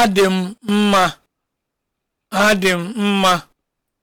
Adị m mma, adị m mma.